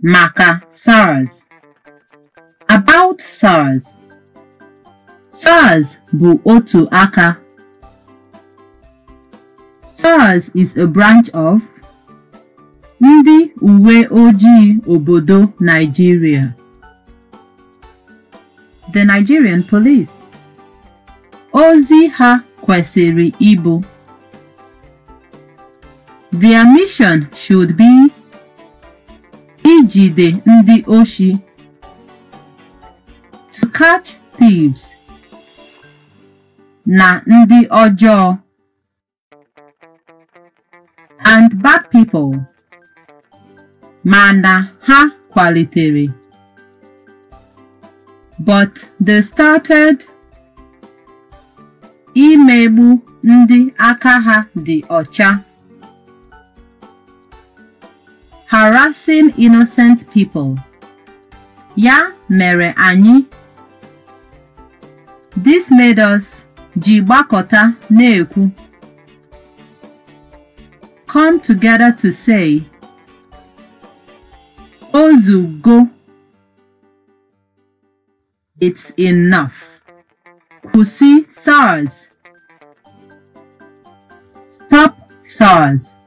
Maka SARS About SARS SARS bụ otu aka SARS is a branch of ndị uwe Oji obodo Nigeria The Nigerian Police Ozi ha kwesịrị ịbụ Their mission should be ijide ndị oshi to catch thieves na ndị ọjọọ and bad people mana ha kwalitere but they started imegbu ndị aka ha dị ọcha harassing innocent people. Ya mere anyị. This made us jibakota neku. Come together to say, go. it's enough. Kusi SARS. Stop SARS.